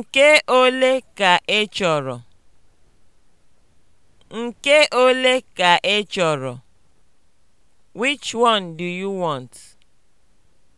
Nke ole ka ị chọrọ? Nke ole ka ị chọrọ? Which one do you want?